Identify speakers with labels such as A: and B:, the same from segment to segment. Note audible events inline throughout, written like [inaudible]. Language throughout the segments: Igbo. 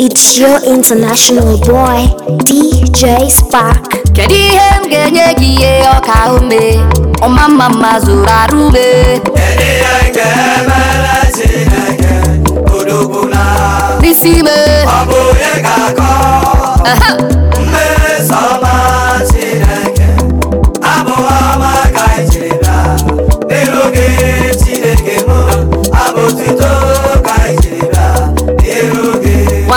A: It's your international boy DJ Spark. Kedu ihe m ga-enye gị ihe ọka ume ọma mma mma zụrụ arụ ume n'isi ime ọ bụ onye ga-akọ mmeso ọma Chineke abụghị ọma ka ị chịrị
B: n'oge Chineke m abụ tuto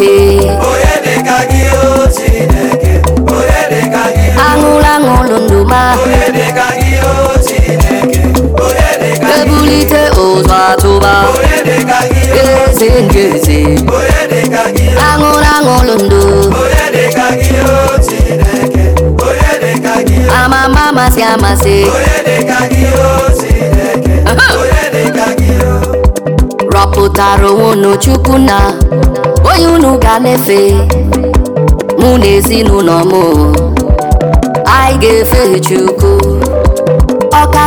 A: Chineke aṅụlụ aṅụlụ ndụ ma ebulite ụzọ atụba eze nke eze aṅụlụ aṅụlụ ndụ amama amasị amasị rọpụtara onwe unu chukwu na onye ka efe mụ na ezinụlọ m anyị ga-efe Chukwu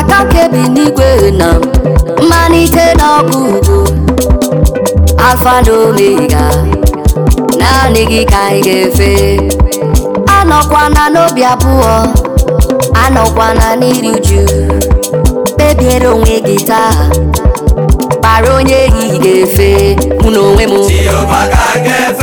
A: ka kebi n'igwe na mmalite na ọgwụgwụ alfa na naanị gị ka anyị ga-efe anọkwana n'obi abụọ anọkwana n'iri uju kpebiere onwe gị taa kpara onye ehihie ga-efe mụ na onwe m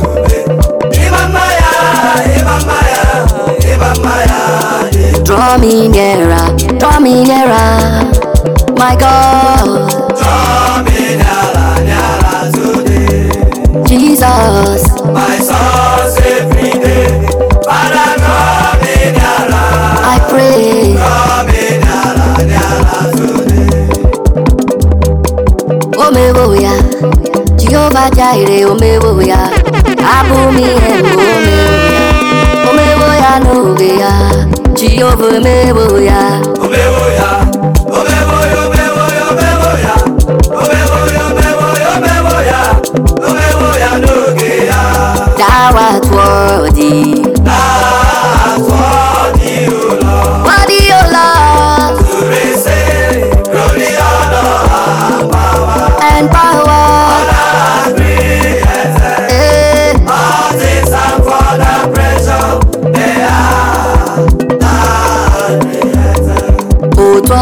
A: Draw me nearer, draw me nearer, my God. Draw me nearer, nearer today. Jesus, my source every day. Father, draw me nearer. I pray. Draw me nearer, nearer today. Omewo ya, Jehovah Jireh, omewo ya, abụ m ihe ya n'oge ya Jehova omewo ya ya ya
B: And power.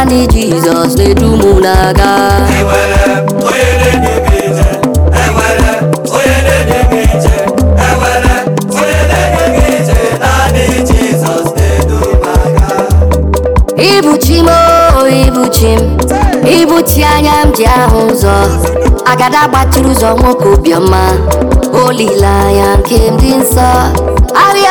A: naanị Jizọs na-edu m n'aga ibuchi m ibuchi m ibuchi anya m ji ahụ ụzọ agada gbatịrị ụzọ nwoke obiọma olileanya nke m dị nsọ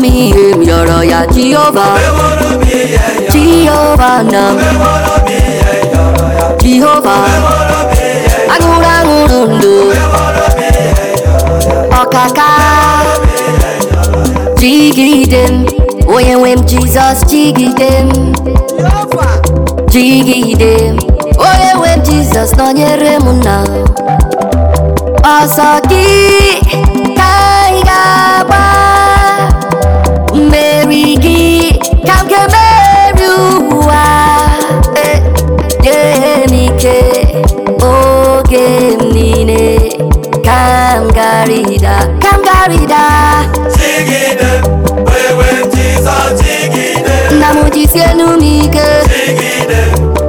A: mi yọ̀rọ̀ ya Jehovah Jehovah nam Jehovah agụrụ aṅụrụ ndụ ọkaka jigide m onye nwe m Jizọs jigide m jigide m onye nwe m Jizọs nọnyere m na ọsọ gị ka ị ga-agba ka m ga-emeri ụwa nye eh, m ike oge m niile ka m garịda ka m garịda nna m jisienu m ike chigide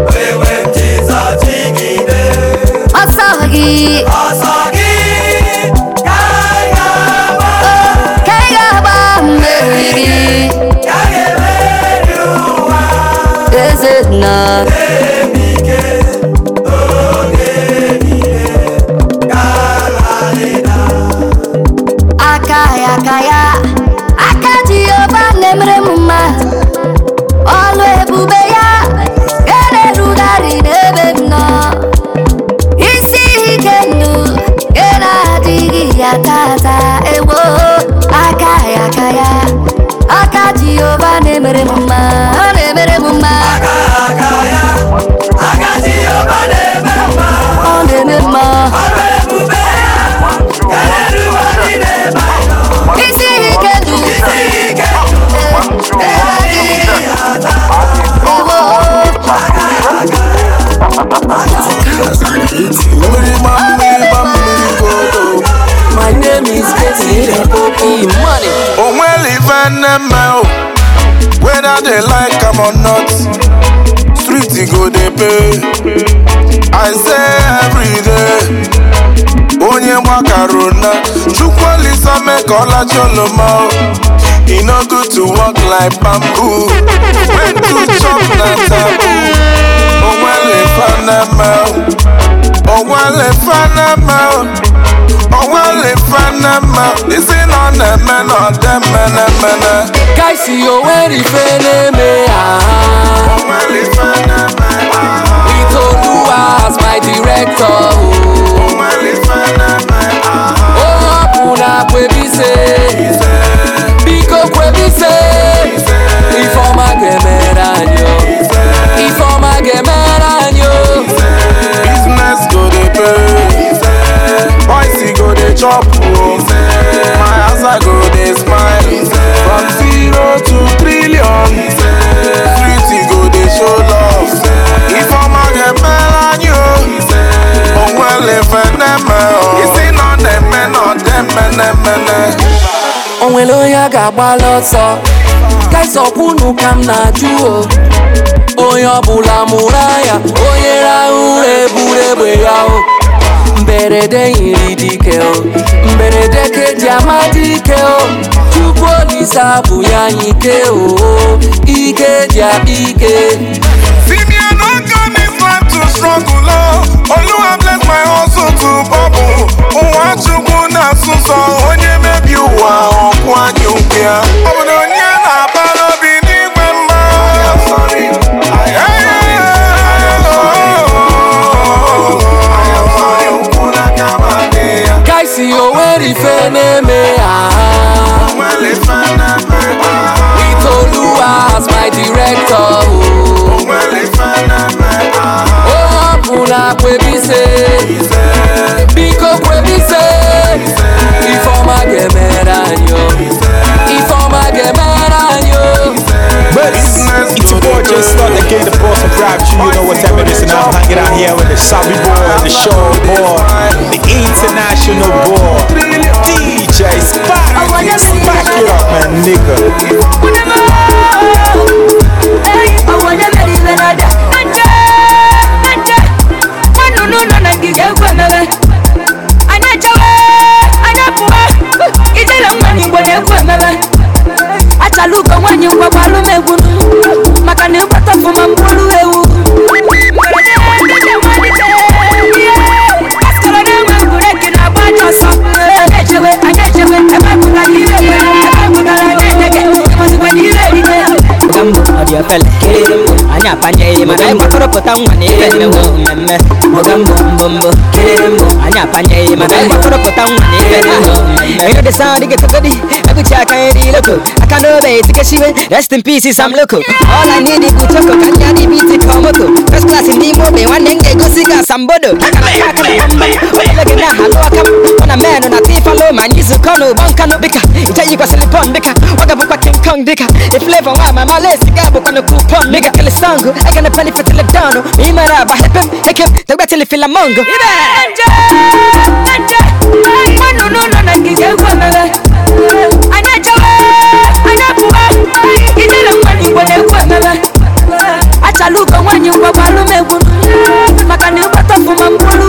A: wewe Jizọs chigide ọsọ gị ọsọ na aka ya aka ya aka ji Jehova na-emere m mma ọlụ ebube ya ga na-erugharị n'ebe m nọ isi ike ndụ ga na-adịghị ya tata ewo aka ya aka ya aka Jehova na-emere m mma ọ na-emere m
B: Onwere ife nne mme o, whether they like am or not. security go dey pay i say everyday onye gbakara na chukwu olisa mee ka ọlachi oloma e no good to work like bamboo when to chop na taboo onwere fa na mouth onwele fanama onwele fanama isi nọ na-eme na ọdeme na-emene kaisi onwere ife na-eme ah. ah. ito do as my director o hapụ na kwebise biko kwebise ifeọma ga-emere anyị oh. ifeọma ga-emere anyị o oh. boys go dey chop o oh. my answer go dey smile from zero to trillion street go dey show love ifeoma ga-emere anyị o onwere feneme o isi nọ na-eme na ọdemenemene
C: onwere onye ga-agbala ọsọ gaisọkwunu ka m na-ajụ o oh.
A: onye ọbụla mụrụ anya onye rahụ ụra eburu egbe ya mberede yiri dike o mberede keji amadike o chukwu olise abụ ya ike o ike dị ike
B: Oluwa my Chukwu onye mebi ụwa ọkwa
D: pụta nwa na ife mmemme mbọgambọ mbọmbọ kererembọ anyị apanyeghị mana mgbakọrọ pụta nwa na ife mmemme ịrị dị saụndị gị agụchi aka nri loko aka n'obe etikesiwe rest in peace sam loko ọla i need bụ choko ka ndị adị biti ka first class nwanne m ga-egosi gị asambodo oele gị na halụ aka m ọ na menụ na tifalo ma anyị zukọ n'ụgbọ kupon dịka ọ ga-abụkwa king kong dịka iflevo nwa ma malesi ga abụkwa na kupon dịka kele aga na pali fetile ma ị mara aba hepem hekem fila mongo ibe na na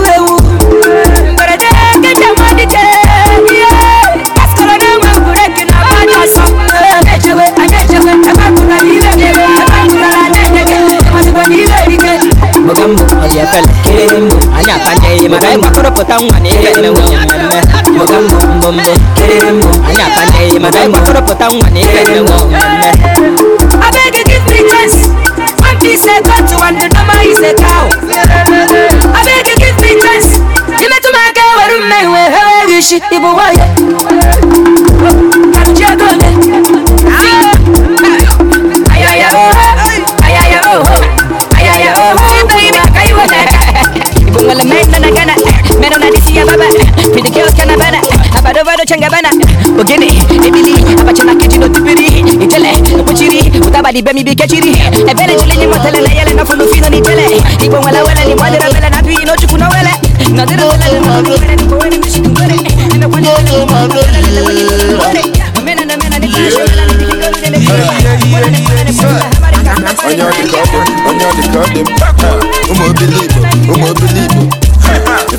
D: mụta mbụ efele kiri mbụ anyị atanyeghị maka anyị gbakọrọpụta nwa na ihe emenwe mmemme mụta kiri mbụ anyị atanyeghị maka anyị gbakọrọpụta nwa na mmemme ka ego ole bana bana abado bado changa bana ogene ebili abacha na no tibiri itele kuchiri utabadi bemi bikechiri ebele chile ni motele na yele na fulu fino ni bele ibo wala wala ni madera na bi no chukuna wele na dera wala na madera bela ni bowele ni na kwani wala ni mena na mena ni na ni
B: the the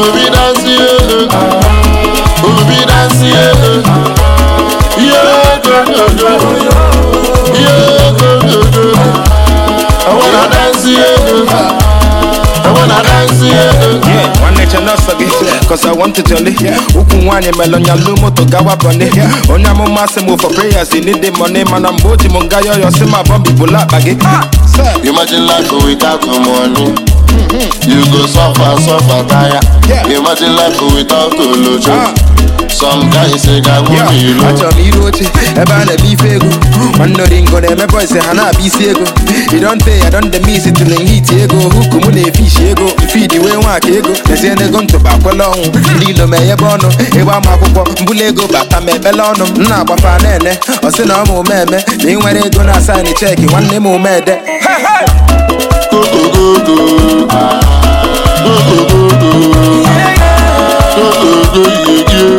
B: obi dansị elu obi nwanne che gị cause I want to jolly ukwu nwaanyị melụ nya lu moto gawa bọni onye amụma say m for prayers in need money mana mgbe o ji m nga yọyọ sị ma bọmbi bụla akpa ah, Imagine life without money mm-hmm. You go suffer, suffer, tire Imagine life without some guys say ga ilu achọrọ m iru oche ebe a na-eme ife ego nwanne ngo na-eme ha na-abịa isi ego you don pay i don dey miss ego huku mụ na-efishi ego fidi wee nwaka ego tezie n'ego ntụba akwela ọnwụ ndị ilo ma ọnụ ịgba ma akwụkwọ mbụla ego bata ma ebele ọnụ m na-agbafa na-ene na ọma omeme na nwere ego na asaịn cheki nwanne m omede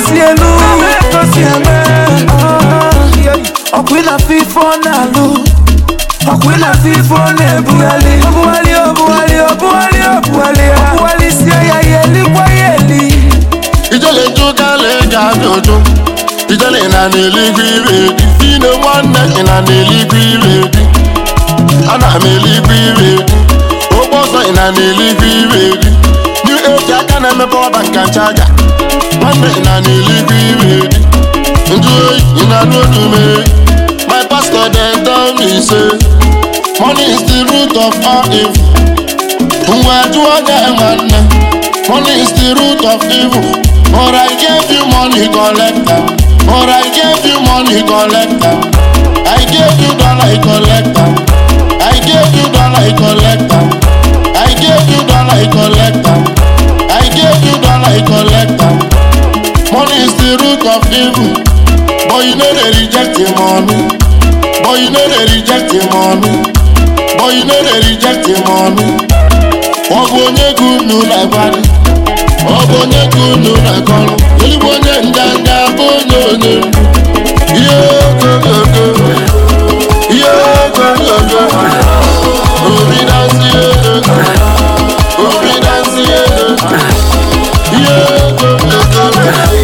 B: si elu ka o si eme ọkwa ịlafe na ọ na-alụ ọkwa ịlafe ife ọ na-ebugharị ọbụgharị ọbụgharị ọbụgharị ọbụgharị ọbụgharị si ya ya elikwa ya eli ijele ga abịa ijele na n'eluigwe ire di fino nwanne gị na n'eluigwe ire di ana m eluigwe ire di na n'eluigwe ire e eji aka na-eme ọba bank chaja na n'eluigwe iwe dị oyi ị na n'olu my pastor dem tell me say money is the root of all evil ngwa jụọ gị nne money is the root of evil or i gave you money collector i gave you money collector i gave you dollar collector i gave you the root of evil. But you know they reject him money. But you know they reject him money. But you know they reject him money. Ọbụ onye gị unu na-agbalị Ọbụ onye gị unu na onye ndanda bụ onye onye Ihe ogologo Ihe ogologo Obi dansị elu Obi dansị elu Ihe ogologo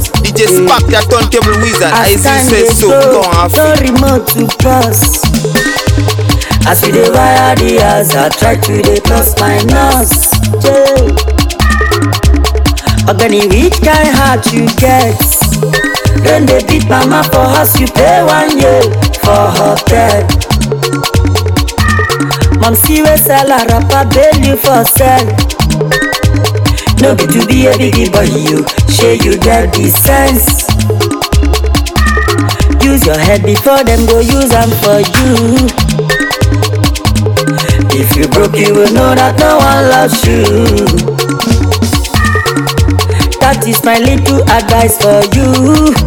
C: DJ Spark, that turntable wizard. I, I see say so, go off. No remote to cross. As we dey wire the I try to dey plus minus. Yeah. Ogani, which kind heart you get? Then they beat mama for house, you pay one year for hotel. Mom see we sell a rapper, bail you for sale. No be to be a biggie boy, you share you get the sense. Use your head before them go use them for you. If you broke, you will know that no one loves you. That is my little advice for you.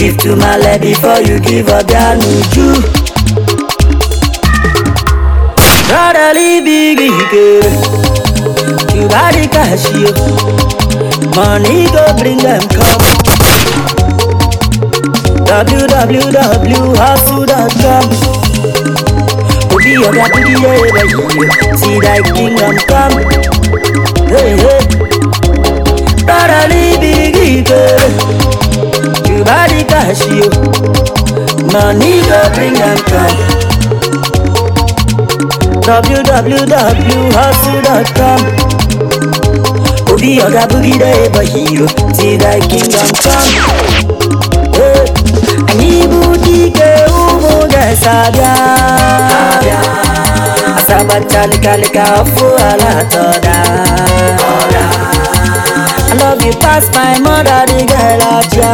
C: Give to my love before you give up your nuju. Brotherly big girl. you got cash, Money go bring them come www.hustle.com Obi ọ̀gá bíbí ẹ̀rẹ̀ yìí ti thy kingdom come hey, hey. Rárá ní bíríkì You cash, you Money go bring them come www.hustle.com Obi Oga Boogie the ever hero Till thy kingdom come eh, Anyị bụ dike ụmụ ga-esabịa Asabatalịkalịka ọfụ ala atọda I love you past my mother, the girl at ya.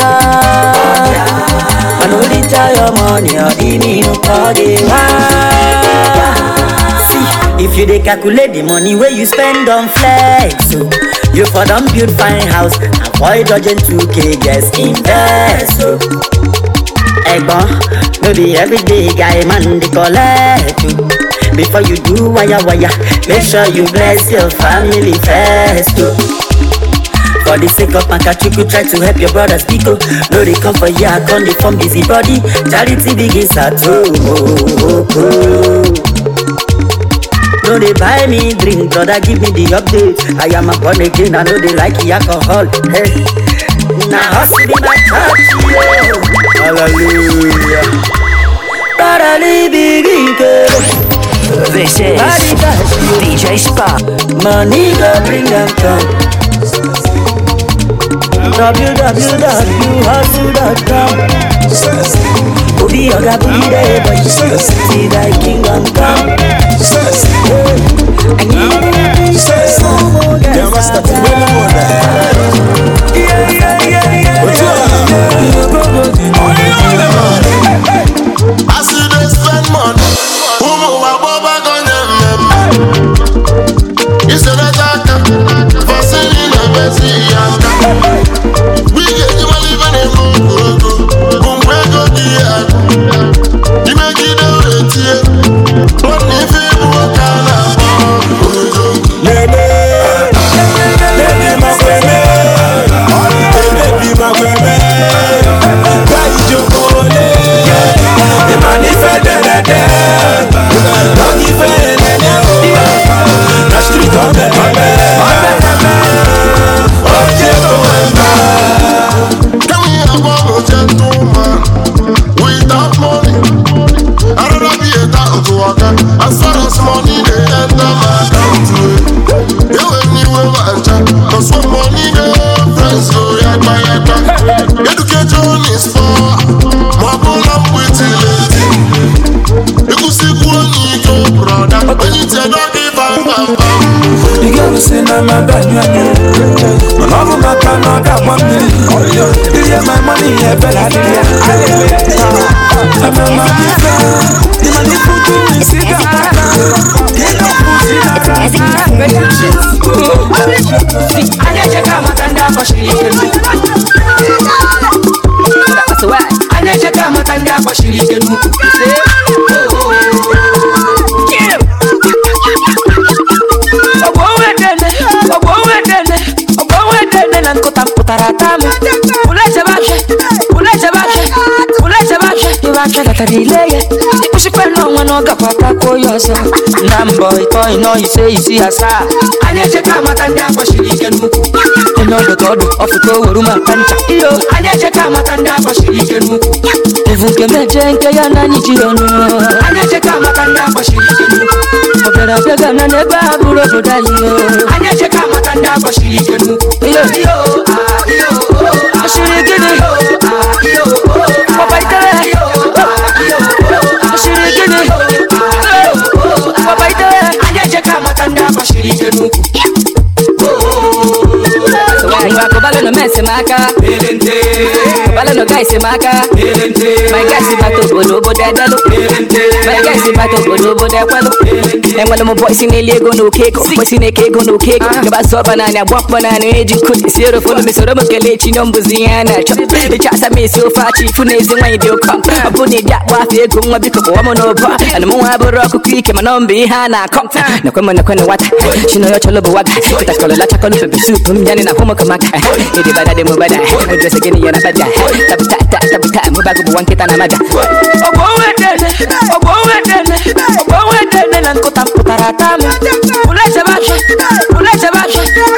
C: I know your money, or the mean, the you dey calculate the money wey you spend on flex o oh. you for don build fine house avoid dodging 2k just invest o oh. egbon no be everyday guy man dey collect o oh. before you do waya waya make sure you bless your family first o for the sake of Pankachuku, try to help your brothers biko no dey come for here come dey form busy body charity begins at home. no dey buy me drink brother give me the update i am born again i no dey like alcohol hey. na hustle be my church yeah. hallelujah This is DJ Spa. Money go bring them
A: come.
C: www.hustle.com Obi oga booty there, but you still see that king on I need to say some more guys Yeah, master, to win the money
B: Yeah, yeah, yeah, yeah I see they spend money Who move above, I them
D: batara ile ya ịkwụsịkwana ọnwa na ọ gakwa atakwuo ya ọzọ na mbọ ịtọ ịnọ ise isi asaa anyị echeka amata ndị agbachiri ike n'ukwu onye ọdụdụ ọdụ ọfụta oweru maka ncha iyo anyị amata ike n'ukwu nke ya na amata ike n'ukwu abịa ha bụrụ obodo amata Você no men si m my na ego na oke ego bọysi na-eke ego na oke ego gaba zụọ ọba naanị agba mkpọ naanị eji nkụzi m kele chi na mbụzi ihe a na asa m esi ofe na ezi nwaanyị dị ọ bụ na ịdị akpọ afọ ego nwa biko kpọwa m n'ụbọ ana m nwa bụrụ ọkụkọ ike mana mbe ihe a na-akọ nakwe m nakwe nwata chinonye ọchọlụ bụ Idi badade mubada Mudrese gini yana baja Tabu ta ta tabu ta Mubagu buwan kita na maga Obo wedene Obo wedene Obo wedene Nankutam putaratam Ule sebashe Ule sebashe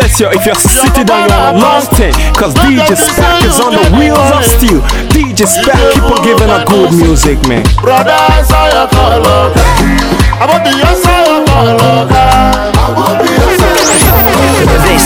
B: test yo if you're sitting down you're on a long Cause DJ Stack is on the wheels of steel DJ Stack keep on giving a good music man Brother I saw your color I want the I
C: I want the I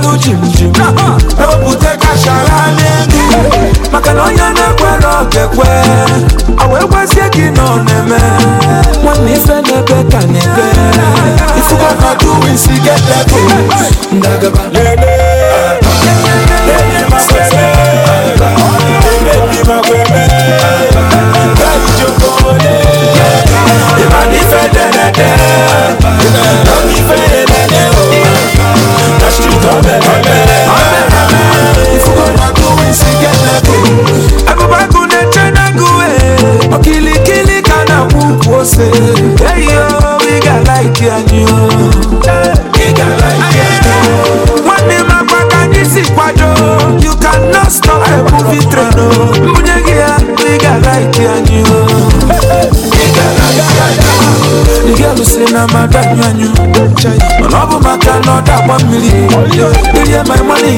B: jim jimjim n'obute kachara n'elu maka na onye na-ekwere ọga-ekwe awa ekwezie gị nọ na-eme nwanne ife n'ebe ka na-ebe ifuga na duwi si gelebu ndagaba lele lele makwere ma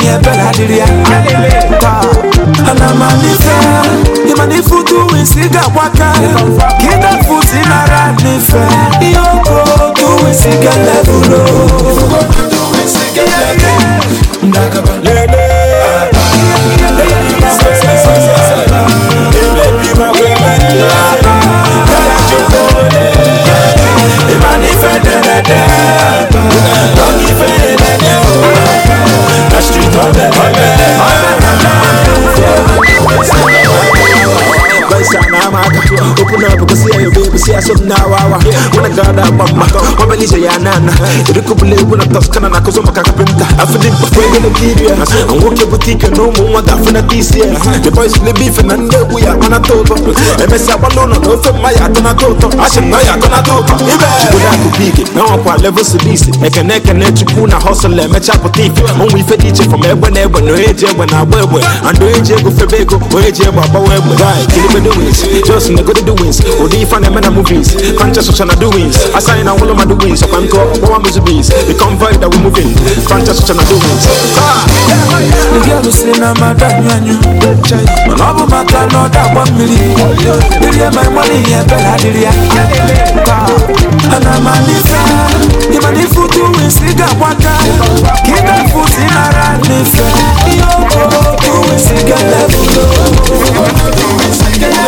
B: ihe ebere adịrị ya ana manife ị mana ife utu wisi ga-agbaka ka ịdafe utu ihe oke otu wisi ga-elevulu sa na ama aka open up ko si ayo baby si na wawa wana gada bamba ya nana iri ko bule ko na toskana na ko zo maka kapinta afidi ko na kidia an woke boutique no the boys na nde ku ya mana toto e me no no ma ya na toto ashe na na ibe na wa kwa level kene kene chukuna hustle e me chapo tifi from egbe na egbe no eje egbe na egbe and do go o egbe egbe wins. Just nigga the doings. Odi fan and na movies. Conscious social doings. Assign and all of my doings. So I'm called one music beats. The convoy that we're moving. Conscious social doings. say na madam yanyu. Man abu mata no da
D: yeah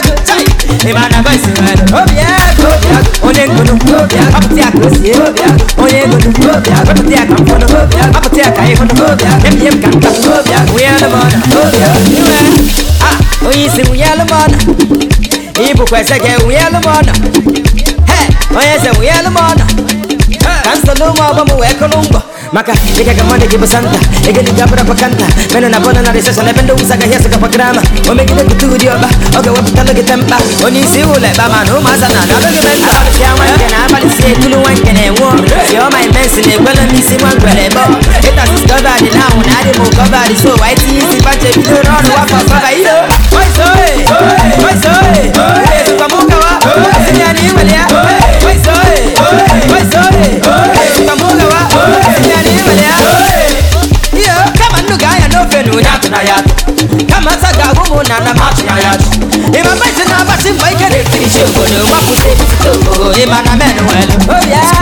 D: ịmana voice nwere obi agụ onye ngunu ọpụta ka osie onye ngunu ọpụta ya ka mfọnụ ọpụta ya ka ịhụnụ emie m ka ntapu nwunye alụmọna iwe onye isi nwunye nwunye nwunye kansụlụ ụmụ ọgbọ m wee kụrụ ngwọ maka ịgaga mmadụ gị bụ santa ego dị gabara kanta mena na bọna na riseshọn ebe ndị wụsa agaghị esokọpa grama o megide pụta ụdị ọkpa ọ ga-ewepụtalụ gị tempa onye isi ụlọ ekpa ma na ụmụaza na adọghị be nta abalị si ekulu nwanke na-enwe ọrụ yọọ ma imensi na-ekwele m isi nwa ngwere bọ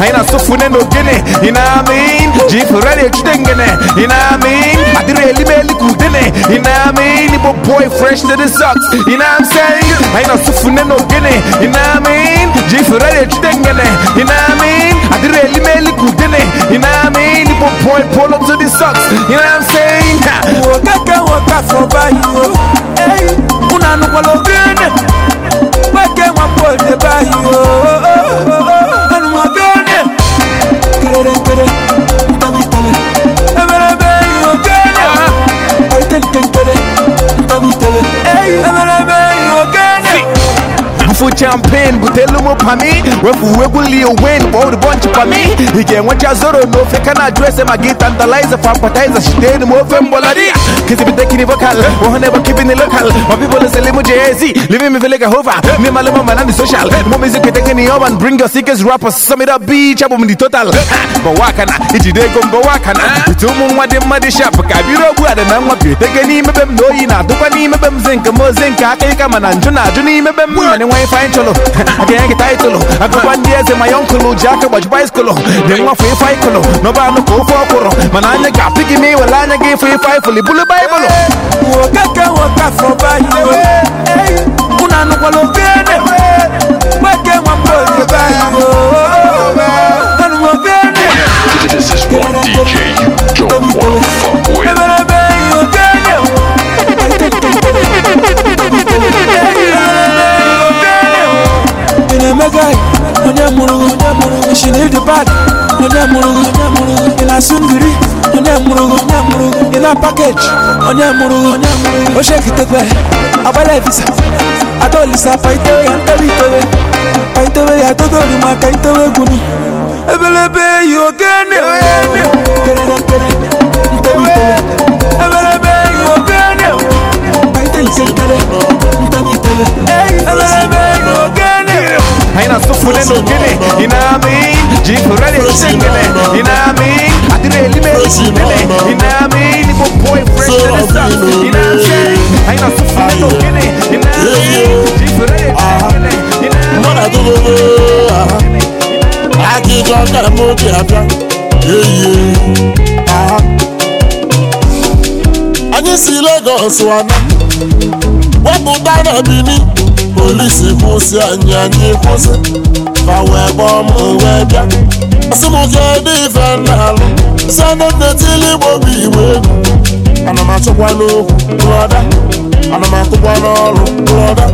B: aina sufu nendo gene ina mean jifu rani chidengene ina mean adire lime likudene ina mean ibo boy fresh to the socks ina I'm saying aina sufu nendo gene ina mean jifu rani chidengene ina mean adire lime likudene ina mean ibo boy pull up to the socks ina I'm saying wokeke woka for bayo hey una nukwalo champagne butelu m pami wefu egwu lil wayne kpọọ ụdịbọnchị pami ị ga-enwecha zoro na ofe ese maka ịtantalize fa appetizer m ofe mgbọladi Cause kini vocal, one never keeping it local. My people are selling with Jay-Z, living me feel like social. More music can take any bring us ike rappers. Some it up beach, I'm in total. But wakana, it's ego go go na It's ụmụ moon what them muddy shop. Kabiro guard and na up here. Take zinc, more zinc, a man and Juna, Juni, them money, why find cholo. [laughs] I can't get title. I go one years in my uncle, Jack, watch bicycle. Then one free fight, no, no, no, go for a coro. Manana, pick me, I baịbụl okeke nwoke afọ baịbụl unu anụkwala obi ene nweke nwamba oge baịbụl enu obi ene eberebe ihe oke ị na-emega onye mụrụ onye onye mụrụ ị na pakeji onye mụrụ ochie kitekwe agbala ebisa adolisa paitewe ya ntewe paitewe ya totori maka itewe egwuni ebelebe yi ogene ebelebe yi ogene paite ntewe ntewe ebelebe yi anyị na nugini Inamin Jifurali shingine Inamin Adire elime shingine Inamin Ibo boy fresh to the sun Inamin Aina sufune Jifurali shingine Inamin Mwana gugugu Aki jwa kara moki abia Yeah Anyị si Lagos wana Wapụta na polisi kwụsị anyị anyị kwụsị ma wee gbaa m wee bịa asị m kedu ife na-alụ sịana nne tili igbo bụ iwe. egwu ana m achọkwa n'okwu brọda ana m atụkwa n'ọrụ brọda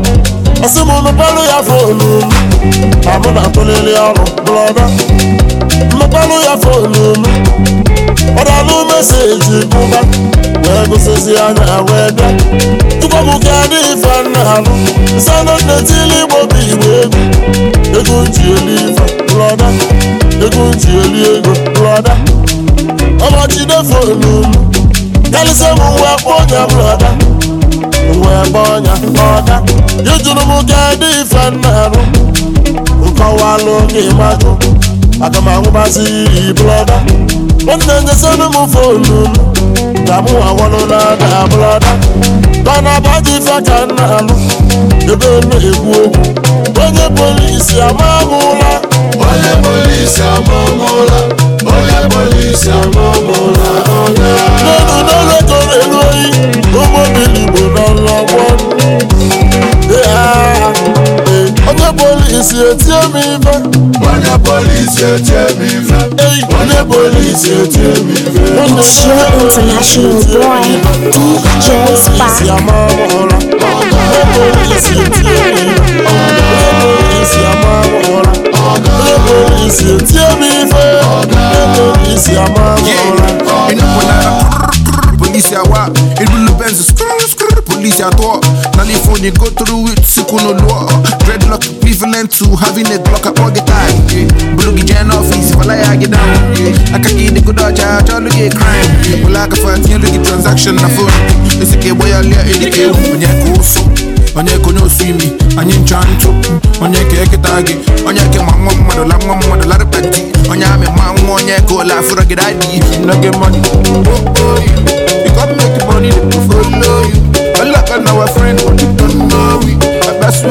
B: asị m mepelụ ya fonu m ma mụ na-atụlili ọrụ brọda mepelụ ya fonu m ọdalụ meseji bụba wee gụsịzi anya wee bịa tukwabụka dị ife nna alụ nsana nnetili igbo bụ igbo egwu ego ji eli ife brọda ego ji eli ego brọda ọbọchidefo n'ulu kalịsịa m wee kpọ ọnya brọda wee kpọ ọnya ọda ijuru m ka dị ife nna alụ nkọwalụ gị majụ aga m anwụbazi blọda. nwanne nyesịrị m fonu ka mụ awalụla na abụlada mana baji ife ka m na-alụ ebe elu egwu okwu onye polisi amamụla onye polisi amamụla onye polisi amamụla n'elu n'elu onye elu oyi polisi etie m ife onye polisi etie m ife onye polisi etie m police at all. Naliphone, you go through it, sukuno law. Dreadlock, prevalent to having a clock at all the time. Bulugi Jan office, if I get down. I can get the good charge, crime. Bulaka for transaction, na phone. It's a kid, boy, I'll get When you're onye ka onye osu imi anyị onye gị onye nwa mmadụ la nwa mmadụ larịpa di onye amị onye ka la gị Oh, oh, you, you make money, follow Allah and our friend, don't know I best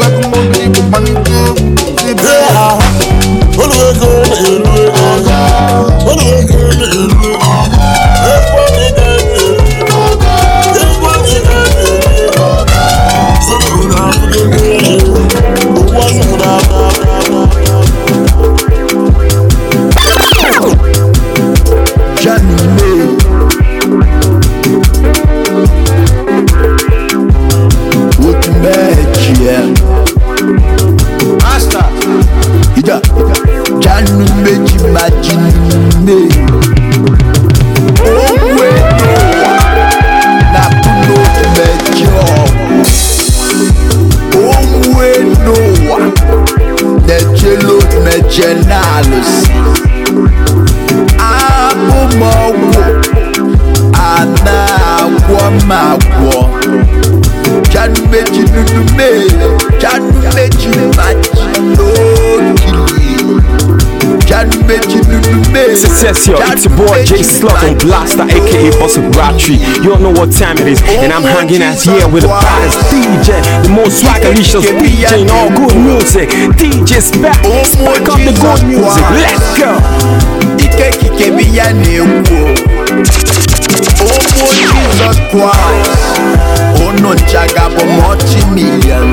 B: It's your boy Jay Slug and Blaster, aka Bossy Ratri. You don't know what time it is, and I'm hanging out here with the baddest DJ, the most swaggericious DJ in all good music. DJ back, spark up the good music. Let's go. Ike kike biya na-ekwu omo jesus Christ unu nchaga bụ mọchi milion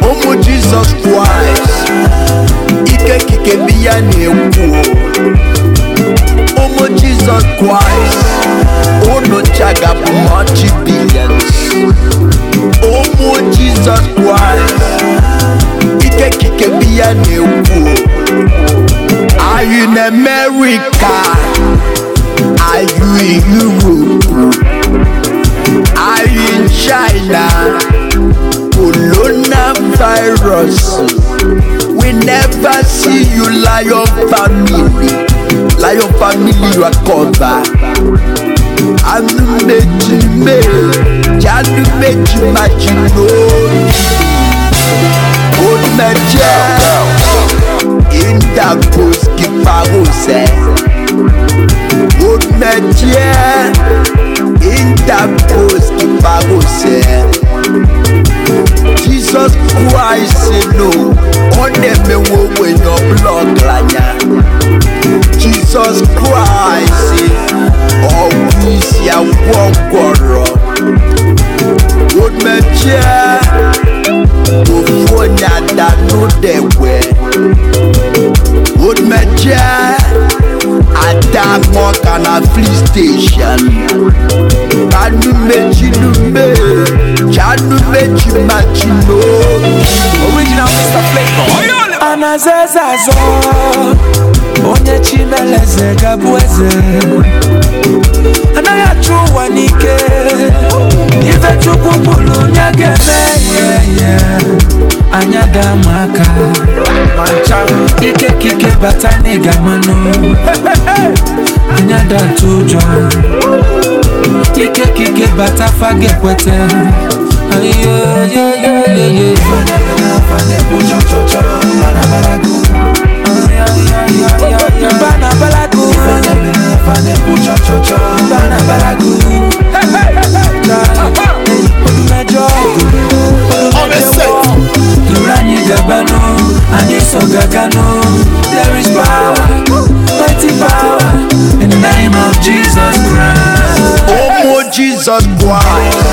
B: ụmụ Jizọs Kraịst ike kike biya na-ekwu oh Jesus Christ unu oh, chagapụ ọchị billions ụmụ oh, Jesus Christ ike kike biya na-ekwu are you in America are you in Europe are you in China virus we never see you lie on family family recover anụ mmechi mmehie ji anụ mmechi machi n'obi omeje indakoski parose omeje Jizọs Kraịst n'o ọ na-emewe ogbenye ọbụla ọgaranya Jizọs Kraịst ọgwụ isi agwọ gwọrọ omechie ofu onye ada n'ụdegwe omechie police station ada nwọka na flis steshọn kanumechinume chanumechimachino original Mr. Flavor anaza eze azọ onye chimeleze gabụ eze anaghị achụ ụwa n'ike ife chukwu bụrụ onye ga-eme ihe anya daa m ike kike bata n'ịga mmanụ anya datụ ụjọ ike kike bata fage kwete ayoyoyoyoyoyo banabalagu banabalagu ọdún ya ya mẹ́jọ ya mẹ́jọ ọdún mẹ́jọ ọdún mẹ́jọ ọdún mẹ́jọ ọdún mẹ́jọ ya mẹ́jọ ya mẹ́jọ ọdún ya ọdún ya ya mẹ́jọ ọdún mẹ́jọ ọdún mẹ́jọ ọdún mẹ́jọ ọdún mẹ́jọ ọdún mẹ́jọ ọdún mẹ́jọ ọdún mẹ́jọ ọdún And this song I there is power, mighty power in the name of Jesus Christ. Oh, more Jesus Christ.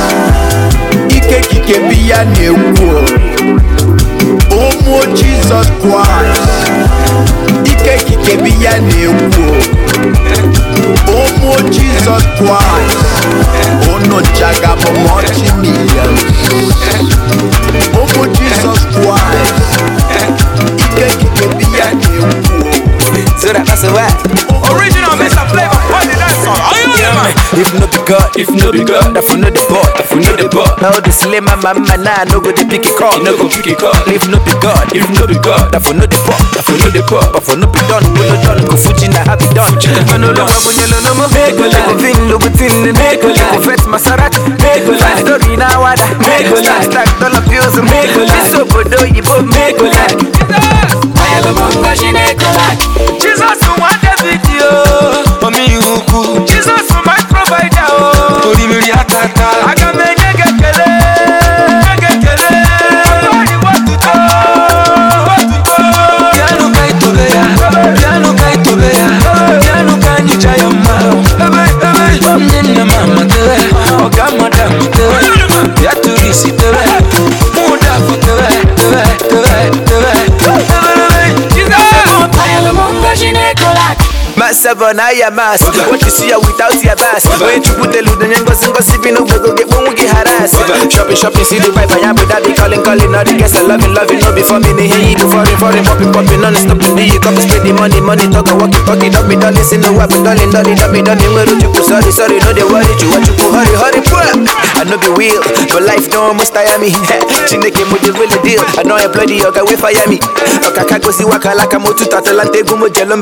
B: Ike kike biya na o. ụmụ Jizọs Kraịst ike kike bi ya na o. Ọmụ Jizọs Kraịst unu chagabụ mọchi milion ụmụ Jizọs Kraịst ike kike ya na ekwuo Original Mr. Flavor, what did If no be God, if no be God, if no the bot, if no the Now no go dey pick If no be God, if no be God, if no the if no the if no be no Go fuji na happy done. I know no one yellow no more make go like thing, no go thing, make go like make story na wada, make stack dollar bills, make level na ya mass. What you see without your bass. When you put the loot and then go yes. Shopping, shopping, see the pipe I am with that. calling, calling, all the guests are loving, loving. No before me, they hear you foreign, foreign, popping, popping, non stop. Do you copy, spend the money, money, talk, walk, talk, don't be darling see no weapon, darling, darling, darling, darling, where you sorry, sorry, no, they worry, you want you go, hurry, hurry, poor. I know the wheel, but life don't almost tire me. [laughs] Chineke mo the really deal, I know I bloody yoga we fire me. Akaka go si waka laka mo tu tatalante gumo jelum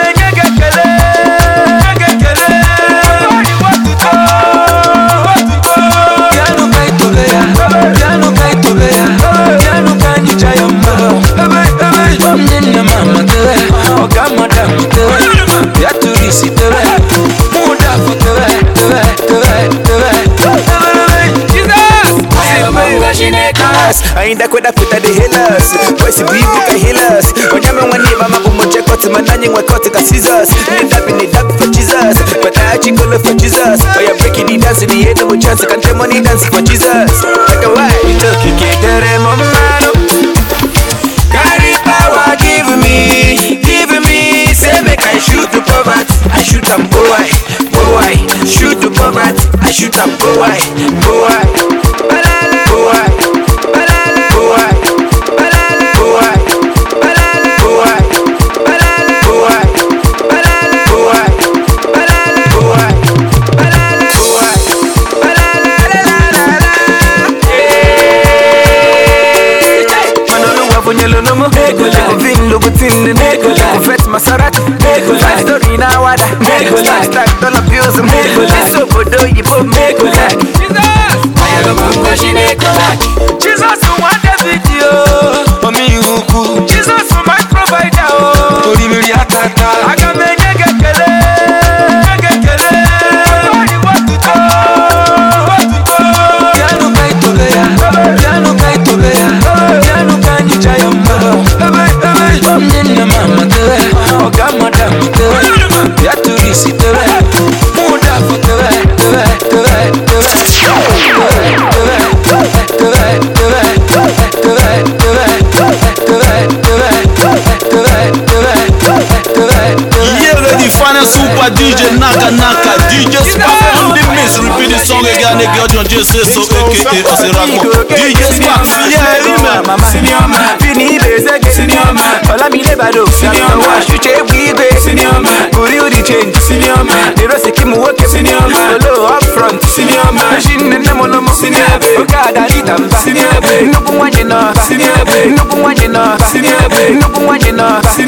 B: ainda kwenda kuta the healers Kwesi bibu ka healers Wanyame waniva mabu moche koti Mandanyi ngwekoti ka scissors dabi Nidapi dabi for Jesus Kwata kolo for Jesus Oya oh, breaking the dance ni yendo mo chance Kante dance for Jesus Waka wai Itoki kedere momano Kariba wa give me Give me Say make I shoot the poverty I shoot am go why Go why Shoot the poverty I shoot am go why Go zomo Chekofin Louboutin din Five story dollar bills yibo Jesus Ayago mungo video Omi Jesus my provider oh. na nnukwu nwa nnukwu nwa ji na It's your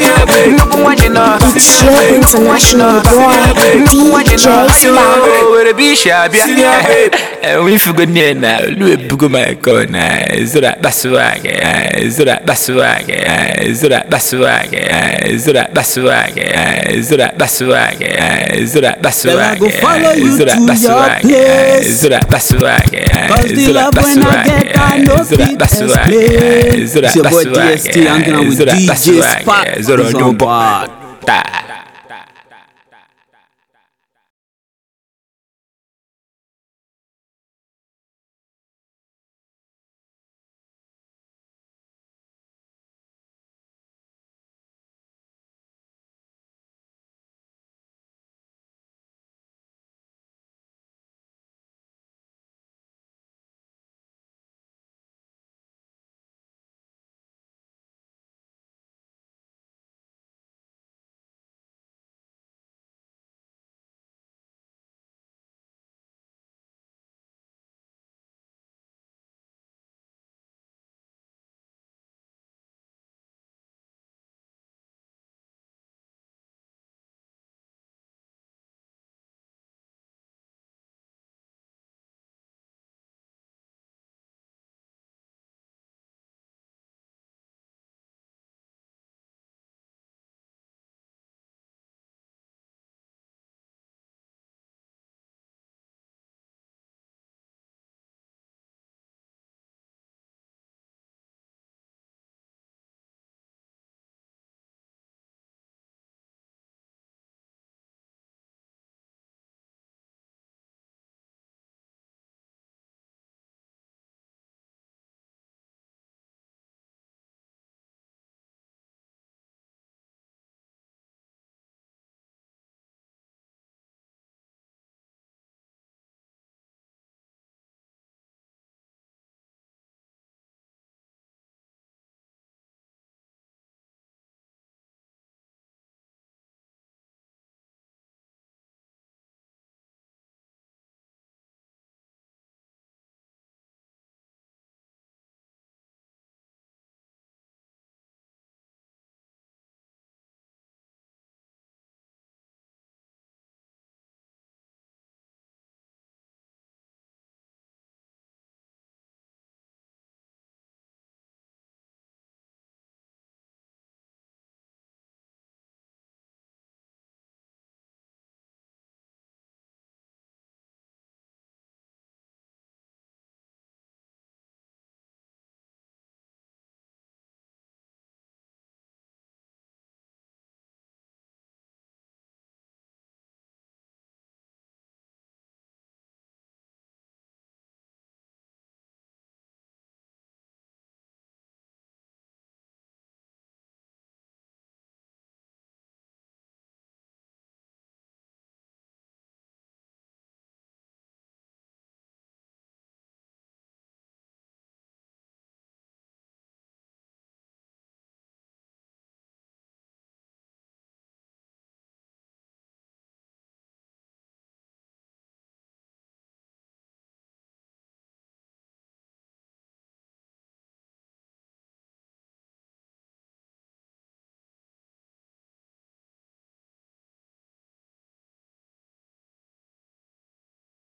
B: international boy, DJ Spy. Where the beach, Abia. And we forgot near now. Louis Buguma Kona, Zura Baswag, Zura Baswag, Zura zoro n'ụbọ taa